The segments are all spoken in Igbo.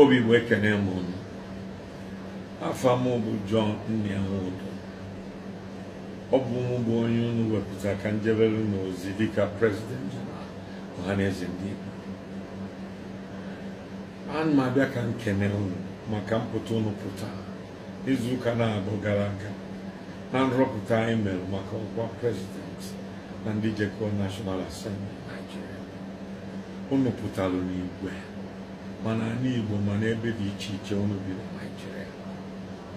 o que é m unu afọ m bụ John Nnianwudu ọ bụ mụ bụ o unu wepụta ka njebere n'ozi dịka prezident ọhaneze ndị Igbo ana m abịa ka nkene unu maka mpụta unu pụta izuụka na-abụ gara aga na nrọpụta anyị mere maka ọkwa prezident na ndị jekọọ National Assembly Nigeria unu pụtara n'igwe mana n'ala Igbo mana ebe dị iche iche ọnụ bi na Naịjirịa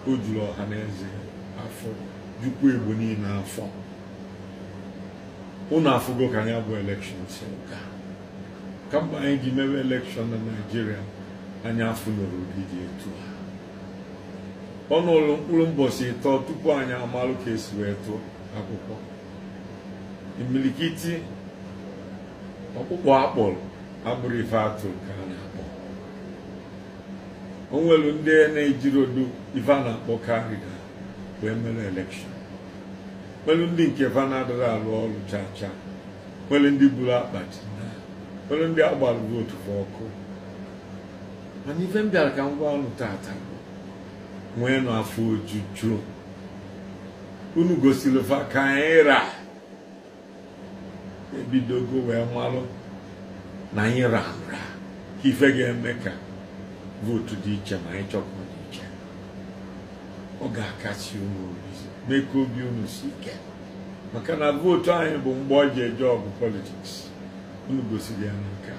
o juru ọha na eze afọ jukwu Igbo niile afọ ụnụ afụgo ka anyị bụ elekshọn si ka kamgbe anyị ji mewe elekshọn na naijiria anyị afụnụrụ ụdị dị etu a ụlọ mkpụrụ mbọchị ịtọ tupu anyị amalụ ka esi wee tụọ akwụkwọ imilikiti ọkpụkpọ akpọrọ abụrụ ife atụ ka a na-akpọ o nwere ndị na-ejiri odu ife a na-akpọ karịda wee mere elekshọn nwere ndị nke va na-adịghị arụ ọrụ chaa chaa nwere ndị buru akpati nwere ndị agbara votu ọkụ mana ife m bịara ka m gwa ọnụ tata nwee nọ afọ ojuju unu gosiri fa ka anyị ra ebidogo wee malụ na anyị ra nra ka ife ga-eme ka vootu dị iche ma anyị chọpụ dị iche ọ ga-akasi unu obi mee ka obi unu si ike maka na vootu anyị bụ mgbe ọ ji eje ọgụ politiks unu gosiri ya n'ike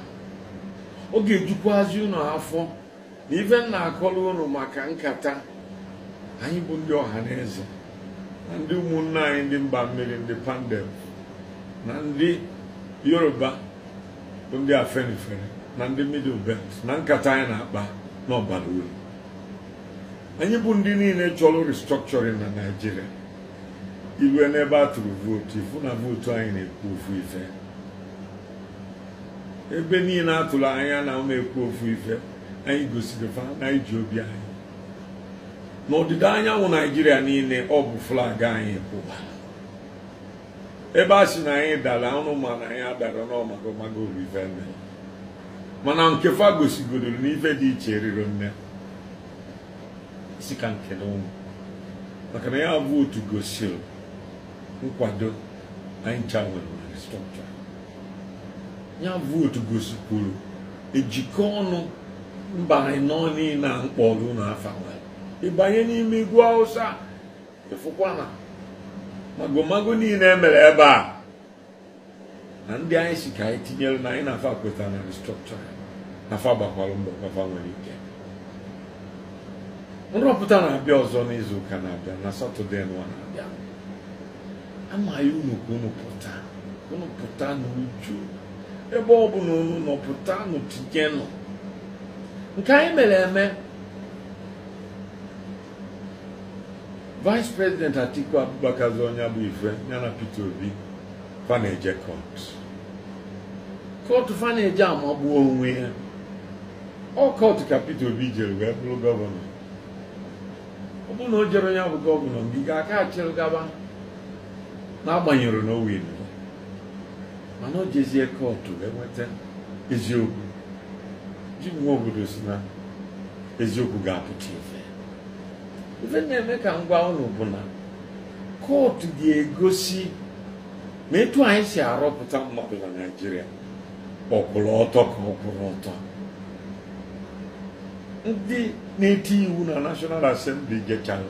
ọ ga-ejukwazi unu afọ na ife m na-akọrọ unu maka nkata anyị bụ ndị ọha na eze na ndị ụmụnna anyị ndị mba mmiri ndị pandem na ndị yoruba bụ ndị afenifere na ndị middle belt na nkata anyị na-akpa na ọbara uru anyị bụ ndị niile chọrọ restructuring na naijiria iwe n'ebe a tụrụ vootu ifu na vootu anyị na-ekwu ofu ife ebe niile atụrụ anya na ụmụ ekwu ofu ife anyị gosiri fa na iji obi anyị n'ọdịda anyanwụ naijiria niile ọ bụ flag anyị kwụba ebe a sị na anyị dara ọnụ ma na anyị adara n'ọmagomago ife mere mana nke fa gosigodoro n'ife dị iche riro nne isi ka nke ụmụ maka na ya bụ otu gosiri nkwado anyị nwere nwere strọkcha ya bụ otu gosikwuru ejikọ ọnụ mba anyị nọ niile a mkpọrụ na afa ịbanye n'ime igwu hausa ịfụkwa na magomago niile emere ebe a na ndị anyị si ka anyị tinyere na anyị na-afa kwetara na ya. afa gbakwara mbọ afa nwere ike nrọpụta na-abịa ọzọ n'izu ụka na-abịa na satọde nwa na-abịa amaghị unu ka unu pụta unu pụta n'uju ebe ọ bụla unu nọ pụta n'utijenụ nke anyị mere eme vice president atiku abubakar onye bụ ife ya na peter obi faneje na-eje kọt amagbuo onwe ya kọtụ ka Peter Obi jere wee bụrụ gọvanọ ọ bụrụ na o jere onye bụ gọvanọ mgbe ga-aka achịrị gaba n'agbanyeghị na o wee mana o jezie kọtụ wee nweta eziokwu ji nwa obodo si na eziokwu ga-apụta ife ife na-eme ka ngwa ụlọ bụ na kootu ga-egosi ma etu anyị si arọpụta mmadụ na Naijiria ọkpụrụ ọtọ ka ọ kwụrụ ọtọ ndị na-eti iwu na National Assembly gechara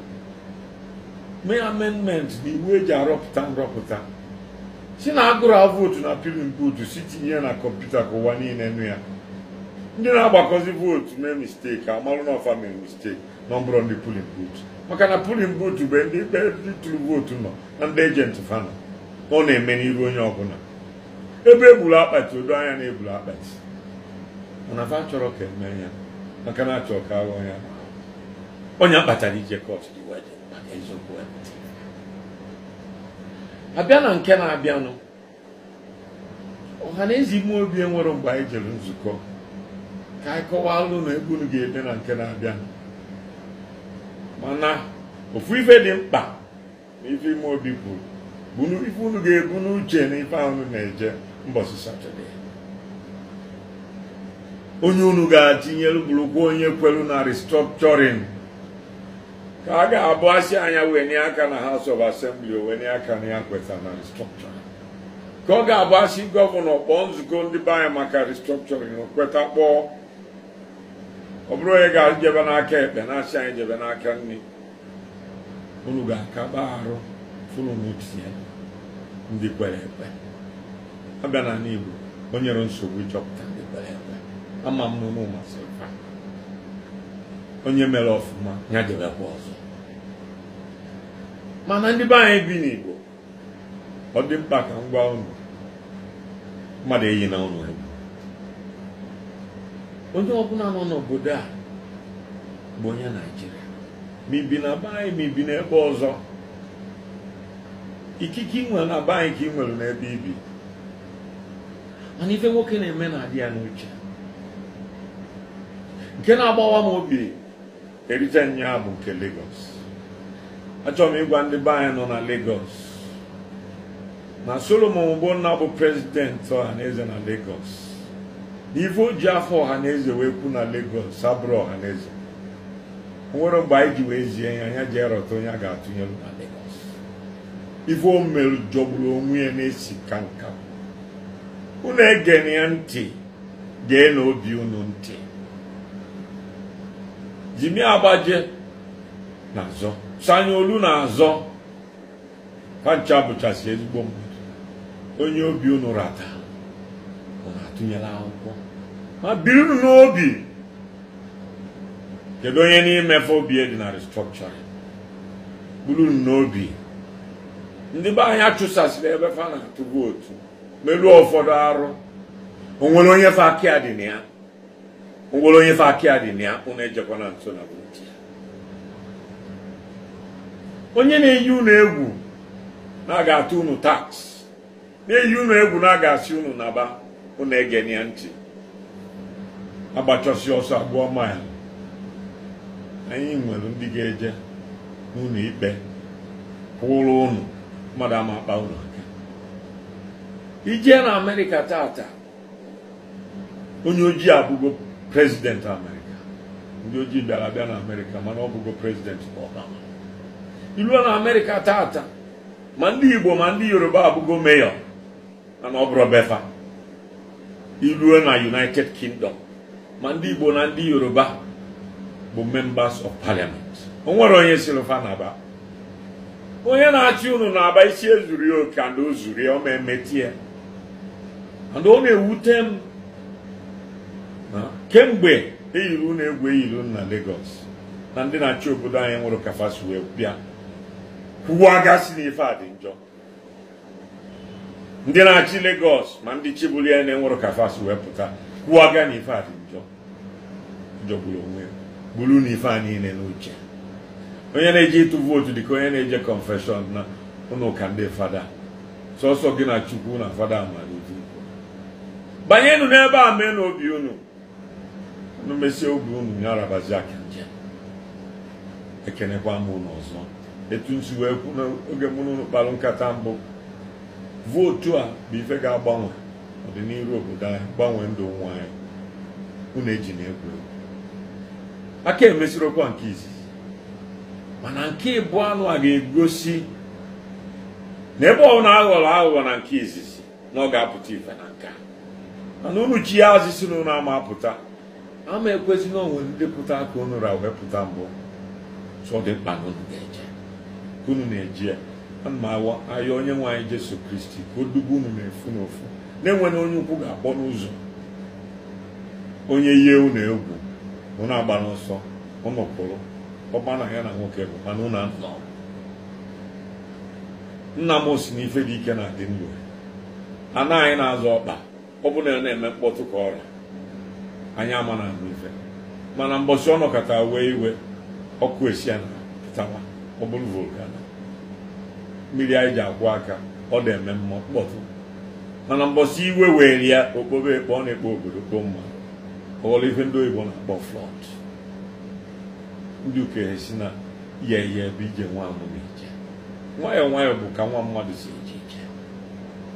mee amendment na iwu eji arọpụta nrọpụta si na agụrụ vootu na pilin vootu si tinye na kọmputa ka ụwa niile nụ ya ndị na-agbakọzi vootu mee misteki amalụ na mee misteki na ọbụrụ ndị pilin maka na pulin vootu bụ ndị tụrụ vootu nọ na ndị ejenti fana na ọ na-eme n'iru onye ọbụla ebe egburu akpati odo anya na-egburu akpati mana fa chọrọ ka eme ya maka na achọ ka aghọ ya onye kpatara ije kọt dị wedin maka eziokwu abịa na nke na-abịanụ ọha na eze ime obi enwere mgbe anyị jere nzukọ ka anyị kọwaa kọwalụ na egwu unu ga-ede na nke na abịanụ mana ofu ife dị mkpa na ife ime obi kwuru bụ ife unu ga-ebu n'uche na ife ahụ na-eje mbọchị satọde onye unu ga-atinyelu bụrụkwa onye kwelu na restructuring ka a ga-abụ asị anya wenye aka na House of Assembly wenye aka na ya kweta na restructuring ka ọ ga-abụ asị gọvanọ kpọọ nzukọ ndị be anyị maka restructuring kweta kpọọ ọ bụrụ onye ga ejebe n'aka ekpe na-asị anyị jebe n'aka nne unu ga-akaba arụ funu n'otie ndị kwere ekpe abịa na n'Igbo o nyere nsogbu ịchọpụta ndị kwere ekpe ama m na ụmụ onye mere ọfụma ya jebekwa ọzọ mana ndị be anyị bi n'Igbo ọ dị mkpa ka m gwa unu mmadụ eyi na ụnụ egwu onye ọbụla nọ n'obodo a bụ onye Naijiria ma ibi na be anyị ma ibi n'ebe ọzọ ikike ị nwere na be anyị ka ị nwere n'ebe ibi mana ife nwoke na-eme na-adị ya n'uche nke na-agbawa m obi erite nya bụ nke Lagos achọrọ m ịgwa ndị be anyị nọ na legos na Solomon nna bụ prezidenti ọhaneze na Lagos na ife o ji afọ ọhaneze wee kwu na legos abụrụ ọhaneze nwere mgbe anyị ji wee zie ya anya ji erọta onye a ga-atụnyelu na ife o mere jọgburu onwe ya na-esi ka nka unu ege ya ntị gee na obi unu ntị Jimi Agbaje na-azọ olu na-azọ ha ncha bụchasị ezigbo mmadụ onye obi unu rata na atụnyela akwụkwọ ma birinu n'obi kedu onye n'imefe obi e dị na restructuring burunu n'obi ndị be anyị achụsasịrị ebe fa na-atụ vootu meruo ụfọdụ arụ onwere onye fa aka dị na ya onwere onye fe aka ya dị na ejekwa na ejekwana nso na onye na-eyi ụnụ egwu na aga ga-atụ unu tax na-eyi ụnụ egwu na aga ga-asị unu naba ụnụ ege na ya ntị agbachọsi ọsọ abụọ maya anyị nwere ndị ga-eje n'ụnụ ikpe kwụrụ ụnụ mmadụ ama akpa unu aka ijee na amerịka tata onye ojii abụgo prezidenti Amerika ndị ojii bịara abịa na Amerịka mana ọ bụgo prezidenti Obama Iluo na Amerịka taata ma ndị Igbo ma ndị Yoruba abụgo mayor mana ọ bụrụ befa Iluo na United Kingdom ma ndị Igbo na ndị Yoruba bụ members of parliament o nwere onye silva naba onye na-achị unu na-aba isi ezuru oke and o zuru emetie and ọ na-ewute m kemgbe eyiri ụlọ egwu eyiri na Lagos na ndị na-achị obodo anyị nwụrụ kafasi wee bịa aga si n'ife a dị njọ ndị na-achị Lagos ma ndị chibụli ya na enwere kafasi wee pụta kwuo ga n'ife a dị njọ jọgburu onwe gburu n'ife a niile n'uche onye na-eje ịtụ vootu dịka onye na-eje konfeshọn na ụlọ ndị fada sọsọ gị na chukwu na fada mara banyenụ n'ebe a mee n'obi unu n'emesie obi unu nyarabazi aka ekenekwa m unu ọzọ etu nsi wee kwu n'oge mụ n'ụlọ kpalụ nkata mbụ vootu a bụ ife ga-agbanwe ọdịnihu obodo anyị gbanwee ndụ nwa anyị unu eji na-egwu egwu aka emesirokwa nke izizi mana nke ịbụ anụ a ga-egosi na ebe ọ aghọrọ aghụghọ na nke izizi na ọ ga-apụta ife na nke a mana unu chi ya azisi na ama apụta ama ekwesị na onwe ndepụta aka unu ra wepụta mbụ so dị mkpa na unu ga-eje ka unu na-eji ya ana m awa ahịa onye nwe anyị Jesu Kristi ka o dubu unu na-efu n'ofu na-enweghị onye ukwu ga-akpọ n'ụzọ onye ihe unu egwu unu agba n'ọsọ unu ọgba na ya na nwoke bụ mana unu anọ nna m si n'ife dị ike na adị ndụ anụ anyị na-azọ ọkpa ọ bụla na-eme mkpọtụ ka ọrịa anyị ama na ife mana mbọchị ọ nọkọta wee iwe ọkụ esia na pụtawa ọ bụrụ volkano mmiri anyị ji akwụ aka ọ na-eme mma mkpọtụ mana mbọchị iwe were ya okpobe ekpo ọ na-ekpo obodo kpo mma ọghọrọ ife ndị oyibo na-akpọ flọd ndị ukenye si na ya ihe ebe ije nwa amụma ije nwayọọ nwayọọ bụ ka nwa mmadụ si eje ije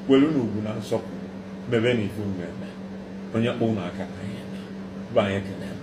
kwelu na ugwu na nsọpụrụ mebe na ife mmemme onye kpọ unu aka na Ryan